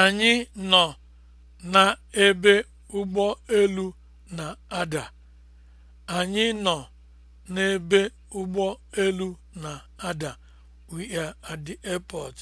Anyị nọ n'ebe ụgbọ elu na-ada. Anyị nọ n'ebe ụgbọ elu na-ada. We are at the airport.